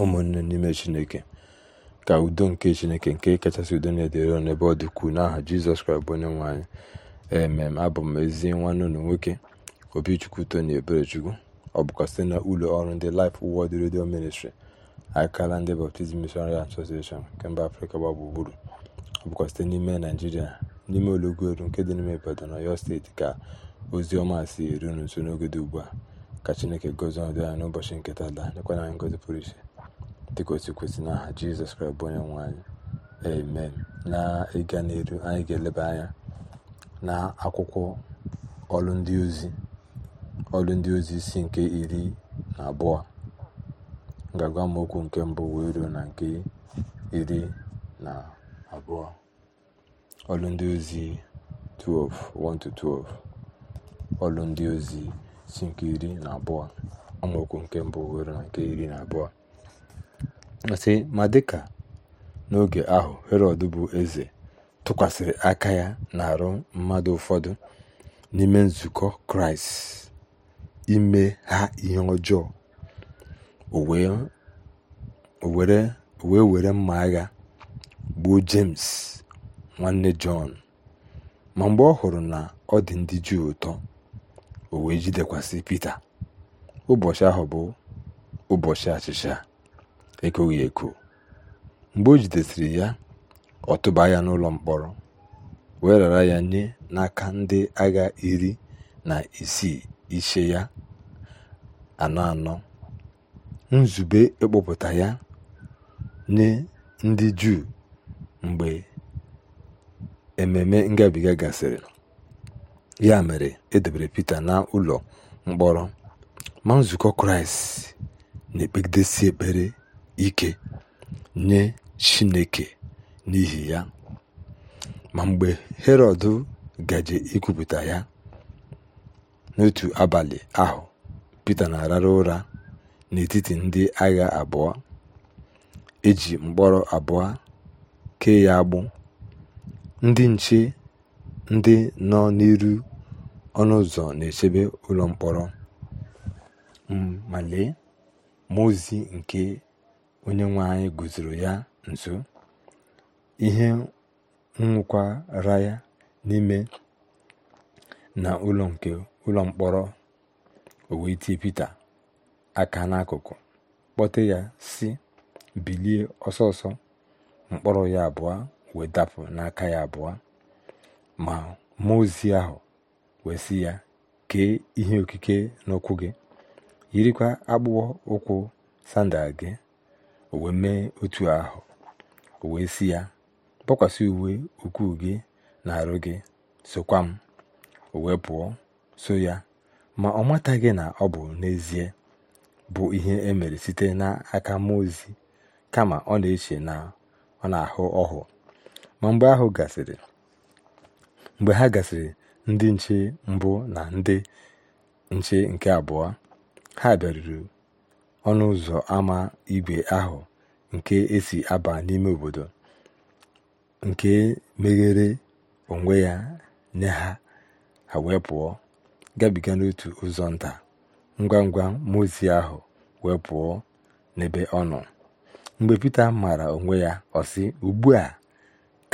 ụmụnne n'ime chineke ka udo nke chineke nke kachasị udo na-edere n'ebe ọ dị n'aha jizọs kraịst bụ onye nwaanyị ee emem abụ m ezi nwanne unu nwoke obichukwu na eberechukwu ọ bụkwa site na ụlọ ọrụ ndị Life wọd redio ministri akala ndị Baptist Missionary Association nke mba afrịka gba gburugburu ọ bụkwa site n'ime naijiria n'ime olọgoru nke dị n'ime Ibadan Ọyọ steeti ka ozi ọma si eru nso n'oge dị ugbu a ka chineke gozi ọdụ n'ụbọchị nketa taa lekwana anyị ngozi pụrụ iche dịka otu kwesịrị n'aha jizọs kraịst bụ onye nwanyị amen na ịga n'elu anyị ga-eleba anya na akwụkwọ ọlụ ndị ozi ọlụ ndị ozi isi nke iri na abụọ ngagwa agwa okwu nke mbụ wee ruo na nke iri na abụọ ọlụ ndị ozi 12 1-12 ọlụ ndị ozi isi nke iri na abụọ amaokwu nke mbụ were na nke iri na abụọ sị ma dịka n'oge ahụ herọd bụ eze tụkwasịrị aka ya na-arụ mmadụ ụfọdụ n'ime nzukọ kraịst ime ha ihe ọjọọ o wee were mma agha gbuo james nwanne jọn ma mgbe ọ hụrụ na ọ dị ndị juu ụtọ o wee jidekwasị pita ụbọchị ahụ bụ ụbọchị achịcha ekoghị eko mgbe o jidesiri ya ọ tụba ya n'ụlọ mkpọrọ wee rara ya nye n'aka ndị agha iri na isii ishe ya anọ anọ nzube ịkpụpụta ya nye ndị juu mgbe ememe ngabiga gasịrị ya mere edobere Pita n'ụlọ mkpọrọ ma nzukọ Kraịst na-ekpegidesi ekpere ike nye Chineke n'ihi ya ma mgbe Herọd gaje ikwupụta ya n'otu abalị ahụ Pita na-arara ụra n'etiti ndị agha abụọ eji mkpọrọ abụọ kee ya agbụ ndị nche ndị nọ n'iru ọnụ ụzọ na-echebe ụlọ mkpọrọ ma m'ozi nke onye nwe anyị guzoro ya nso ihe nwụkwara ya n'ime na ụlọ ụlọ mkpọrọ owe Pita aka n'akụkụ kpọte ya si bilie ọsọ mkpọrọ ya abụọ wee dapụ n'aka ya abụọ ma mmụọ ozi ahụ wee si ya kee ihe okike n'ụkwụ gị yirikwa akpụkpọ ụkwụ sandal gị o wee mee otu ahụ o wee si ya kpọkwasị uwe ukwuu gị na arụ gị sokwa m o wee pụọ so ya ma ọ mataghị na ọ bụ n'ezie bụ ihe emere site n'aka mmụọ ozi kama ọ na-eche na ọ na-ahụ ọhụ ma mgbe ahụ gasịrị mgbe ha gasịrị ndị nche mbụ na ndị nche nke abụọ ha bịaruru ọnụ ụzọ ama igwe ahụ nke esi aba n'ime obodo nke meghere onwe ya nye ha ha wee pụọ gabiga n'otu ụzọ nta ngwa ngwa mozi ahu ahụ wee pụọ n'ebe ọ nọ mgbe pete maara onwe ya ọ sị ugbu a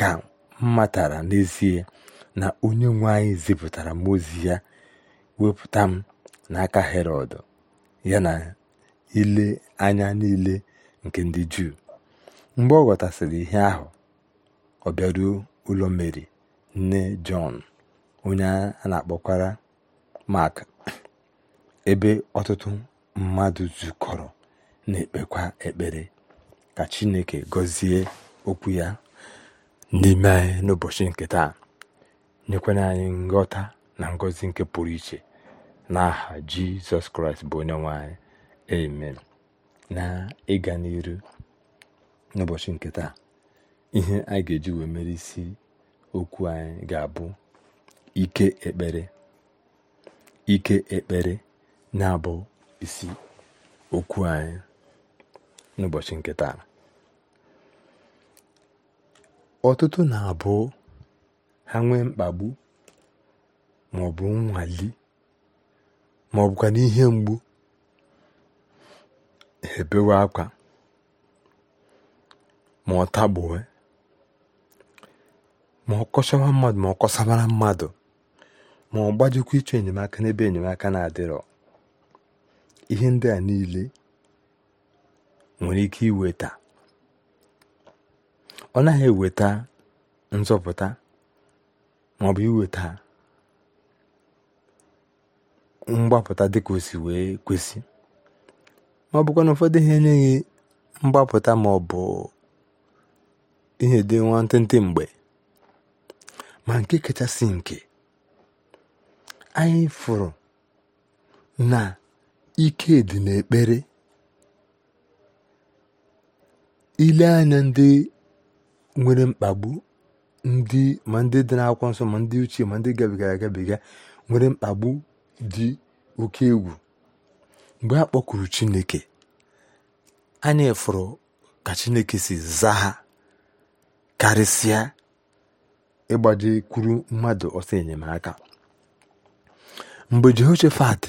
ka m matara n'ezie na onye nwe anyị zipụtara mozi ya wepụta m n'aka Herọd ya na ile anya niile nke ndị Juu mgbe ọ ghọtasịrị ihe ahụ ọ bịaruo ụlọ Meri nne Jọn onye a na-akpọkwara Mak ebe ọtụtụ mmadụ zukọrọ na-ekpekwa ekpere ka Chineke gọzie okwu ya n'ime anyị n'ụbọchị nke taa nyekwana anyị nghọta na ngọzi nke pụrụ iche n'aha Jizọs Kraịst bụ onye nwe anyị amen na ịga n'iru n'ụbọchị nke taa ihe a ga-eji wee mere isi okwu anyị ga-abụ ike ekpere ike ekpere na-abụ isi okwu anyị n'ụbọchị nke taa ọtụtụ na-abụ ha nwee mkpagbu maọbụ nnwali maọbụkwa n'ihe mgbu ebewe akwa ma ọ tagbuwe ma ọ kọchawa mmadụ ma ọ kọsabara mmadụ ma ọ gbajikwa ịchọ enyemaka n'ebe enyemaka na-adịrọ ihe ndị a niile nwere ike iweta ọ naghị eweta nzọpụta maọbụ iweta mgbapụta dịka o si wee kwesị ma ọ bụkwa na ụfọdụ ihe enyeghị mgbapụta ma ọ bụ ihe dị ntị mgbe ma nke kachasị nke anyị fụrụ na ike dị n'ekpere ile anya ndị nwere mkpagbu ndị ma ndị dị n'akwụkwọ nsọ ma ndị uche ma ndị gabigara agabiga nwere mkpagbu dị oke egwu mgbe a kpọkuru chineke anyị fụrụ ka chineke si zaa ha karịsịa ịgbaje kwuru mmadụ ọsọ enyemaka mgbe jehoshafat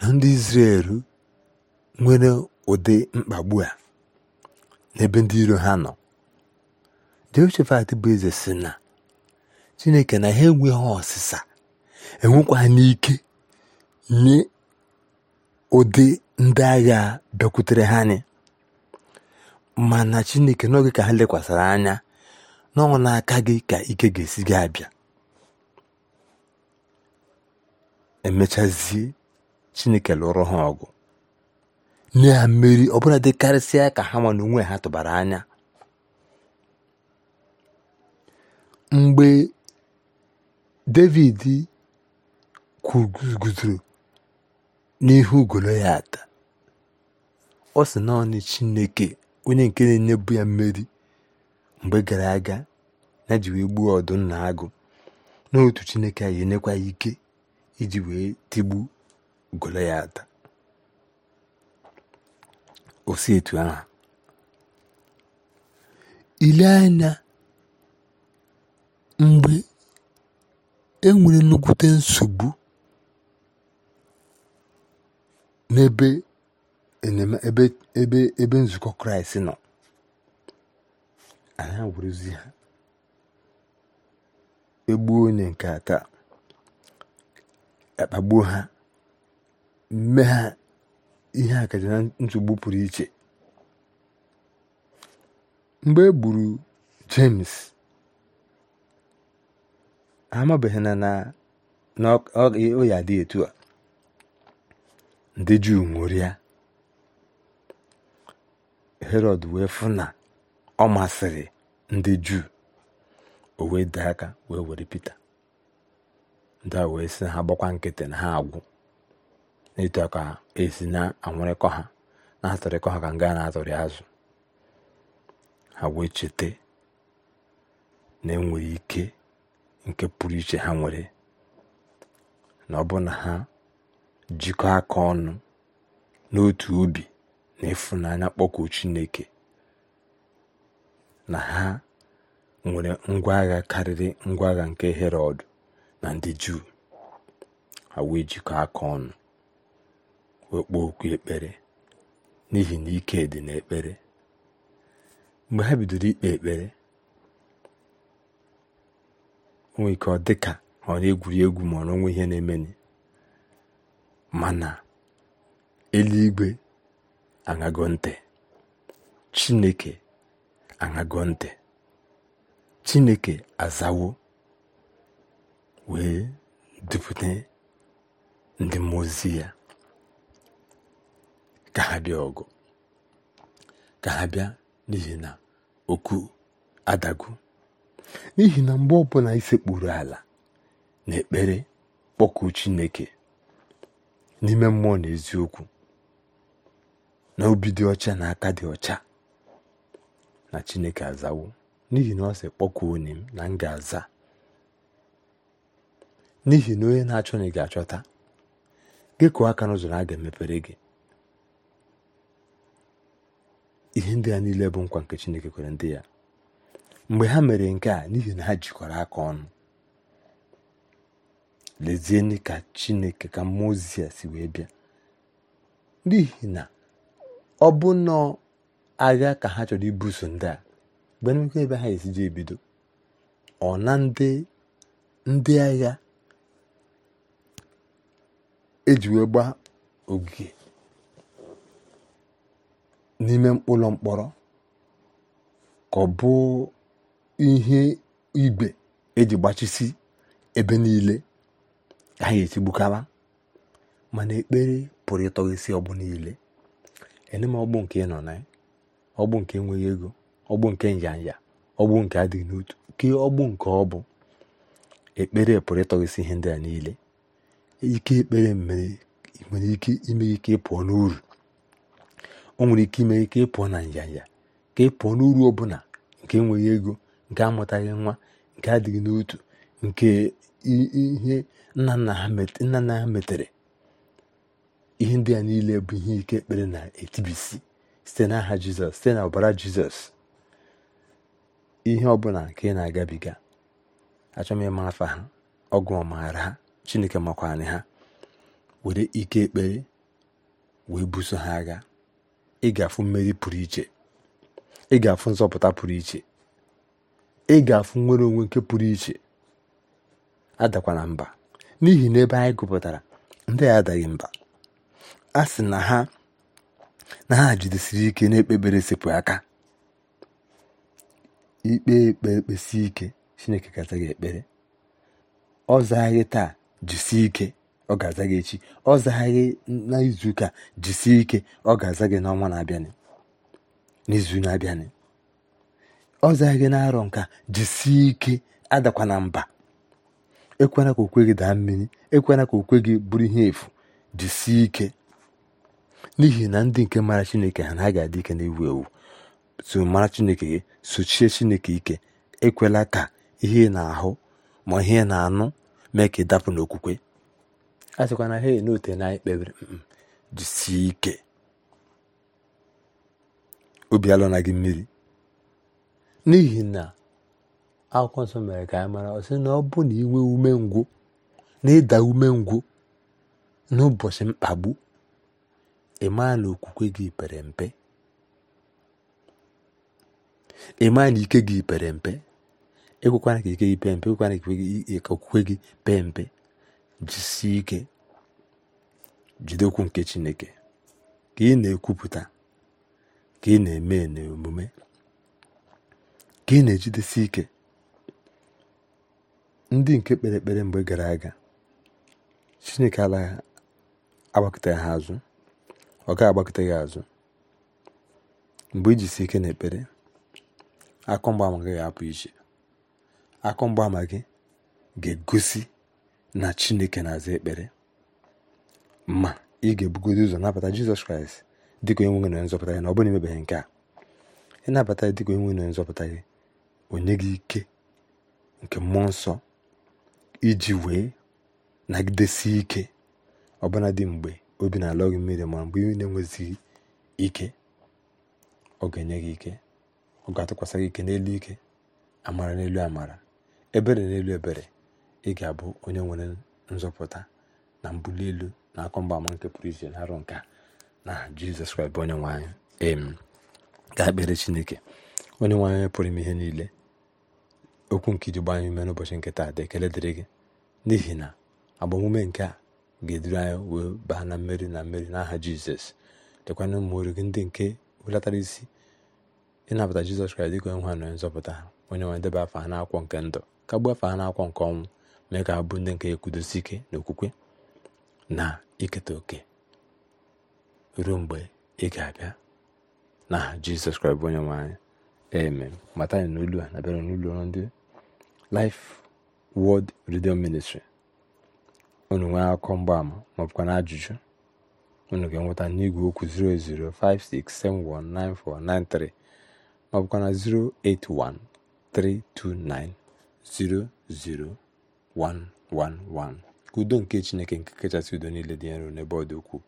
na ndị izrel nwere ụdị mkpagbu a n'ebe ndị iro ha nọ jehoshafat bụ eze si na chineke na ha enweghị ọsịsa enwekwa n'ike nye ụdị ndị agha bịakwutere ha anyị mana chineke n'oge ka ha lekwasịrị anya n'ọnwụ n'aka gị ka ike ga-esi gị abịa emechazie chineke lụrụ ha ọgụ nye ha mmeri ọbụla dị dịkarịsịa ka ha ma onwe ha tụbara anya mgbe david kwuguzoro n'ihu ata, Ọ sị naanị Chineke onye nke na-enyebu ya mmeri mgbe gara aga na ji wee gbuo ọdụm na agụ n'otu Chineke a enyekwa ike iji wee tigbu Goloyat osi etu ahụ ile anya mgbe e nwere nnukwute nsogbu n'ebe ebe ebe nzukọ kraịst nọ a anyị awụrụzi ha egbuo onye nke ata akpagbuo ha mme ha ihe a kacha na nsogbu pụrụ iche mgbe e gburu james amabeghị na na ọ ya dị etu a ndị juu ṅụrịa herod wee fụ na ọ masịrị ndị juu o wee dee aka wee were pita ndị a wee sị ha gbakwa nkịtị na ha agwụ n'ịtụ aka esi na-anwụrịkọ ha na atụrịkọ ha ka nga na-atọrị azụ ha wee chete na enwere ike nke pụrụ iche ha nwere na ọ bụ na ha jikọ aka ọnụ n'otu obi na ịfụnanya kpọkuo Chineke na ha nwere ngwa agha karịrị ngwa agha nke Herọd na ndị Juu ha wee jikọ aka ọnụ wee okwu ekpere n'ihi na ike dị ekpere mgbe ha bidoro ikpe ekpere onwe ike ọ dị ka ọ na-egwuri egwu ma ọ nwe ihe na-emeni mana eluigwe aṅago ntị chineke aṅago ntị chineke azawo wee dupụta ndị mmụọ ozi ya ka ha ọgụ ka ha n'ihi na okwu adagu n'ihi na mgbe ọbụla isekpuru ala na ekpere kpọkụ chineke n'ime mmụọ na eziokwu na obi dị ọcha na aka dị ọcha na chineke azawo n'ihi na ọ sị kpọkụ onye m na m ga-aza n'ihi na onye na-achọ na ị ga-achọta gị kụọ aka n'ụzọ na a ga-emepere gị ihe ndị a niile bụ nkwa nke chineke kwere ndị ya mgbe ha mere nke a n'ihi na ha jikọrọ aka ọnụ lezienụ ka chineke ka a si wee bịa n'ihi na ọ bụ nnọọ agha ka ha chọrọ ibuso ndị a nnukwu ebe ha esi esiji ebido ọ na ndị agha eji wee gbaa ogige n'ime ụlọ mkpọrọ ka ọ bụ ihe igwe eji gbachisi ebe niile ha ga-etigbukawa mana ekpere pụrụ e ịtọghịsị ọgbụ niile ene m ọgbụ nke ị nọ na ya e? ọgbụ nke enweghị ego ọgbụ nke njanja ọgbụ nke adịghị n'otu ke ọgbụ nke ọ bụ ekpere pụrụ ịtọghịsị e ihe ndị a niile ike ekpere mere nwere ike ime ike ịpụọ n'uru o nwere ike ime ike ịpụọ na njanja ka ị pụọ n'uru ọbụla nke enweghị ego nke amụtaghị nwa nke adịghị n'otu nke ihe nna nna ha metere ihe ndị a niile bụ ihe ike ekpere na-etibisi site n'aha jizọs site na ọbara jizọs ihe ọbụla nke ị na-agabiga achọ m ịma afa ha ọgụ ọmaara ha chineke makwanyị ha were ike ekpere wee buso ha agha ị ga-afụ mmeri pụrụ iche ị ga-afụ nzọpụta pụrụ iche ị ga-afụ nnwere onwe nke pụrụ iche adakwana mba n'ihi na ebe anyị gụpụtara ndị a adaghị mba a sị na ha na ha jidesiri ike na-ekpebere sepụ aka ikpe ekpe kpesi ike chineke ga gị ekpere ọ zaghị taa jisie ike ọ ga-aza gị echi ọ zaghị gị n'izuụka jisie ike ọ ga-aza gị n'ọnwa na-abịanị n'izu na-abịanị ọ zaghị gị na-arọ nka jisie ike adakwana mba ekwela ka okwe gị daa mmiri ekwela ka okwe gị bụrụ ihe efu jisie ike n'ihi na ndị nke mara chineke ha na ga adị ike na-ewu ewu so mara chineke gị sochie chineke ike ekwela ka ihe na-ahụ ma ihe na-anụ mee ka ị dapụ n'okwukwe a sịkwa na ha n'ote na anyị mm, mm, jisie ike obi alụna gị mmiri n'ihi na akwụkwọ nsọ mere ka anyị mara ọ sị na ọ bụ na inwe umengwụ na ịda umengwụ n'ụbọchị mkpagbu ịma na okwukwe gị pere mpe ịma na ike gị pere mpe ekwekwana ka ike gị pee mpe ekwekwana ka okwukwe gị pee mpe jisie ike jide nke chineke ka ị na-ekwupụta ka ị na-eme n'omume ka ị na-ejidesi ike ndị nke kpere ekpere mgbe gara aga chineke alaghị agbakọta ha azụ ọ gaghị agbakọta gị azụ mgbe ijisi ike na ekpere akụ mgbaama gị ga-apụ iche akụ mgbaama gị ga-egosi na chineke na-aza ekpere ma ị ga-ebugodo ụzọ nabata jizọs kraịst dịka enweghị na nzọpụta gị na ọ bụrụ nke a ịnabata ya dịka enweghị na nzọpụta gị onye gị ike nke mmụọ nsọ iji wee nagidesi ike ọbụna dị mgbe obi na-alọ mmiri ma mgbe ị na-enwezighị ike ọ ga-enye gị ike ọ ga-atụkwasị gị ike n'elu ike amara n'elu amara ebere n'elu ebere ị ga-abụ onye nwere nzọpụta na mbuli elu na akọ ama nke pụrụ iche na arụ nke na jizọs kraịst bụ onye nwe anyị em ga-ekpere chineke onye nwe anyị pụrụ ime ihe niile okwu nke iji gbanye ume n'ụbọchị nke taa dị ekele dịrị gị n'ihi na agbamume nke a ga-eduru anyị wee baa na mmeri na mmeri n'aha jizọs lekwana ụmụ oru gị ndị nke welatara isi ịnabata jizọs kraịst dịka onye nwa na nzọpụta ha onye nwe debe afọ ha n'akwụkwọ nke ndụ ka gbuo afọ ha akwọ nke ọnwụ mee ka ha bụ ndị nke ekwudosi ike na okwukwe na iketa oke ruo mgbe ị ga-abịa n'aha jizọs kraịst bụ onye nwe eme amen mata anyị n'olu a na bịara n'ụlọ ndị Life Word Radio Ministry unu nwee akụkọ mgbaama maọbụkwa na ajụjụ unu ga-enweta n'igwe okwu 08056719493 maọbụkwa na 08132900111 udo nke Chineke nke kachasị udo niile dị nro n'ebe ọ dị ukwuu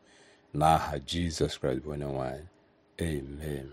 n'aha Jizọs Kraịst bụ onye nwe amen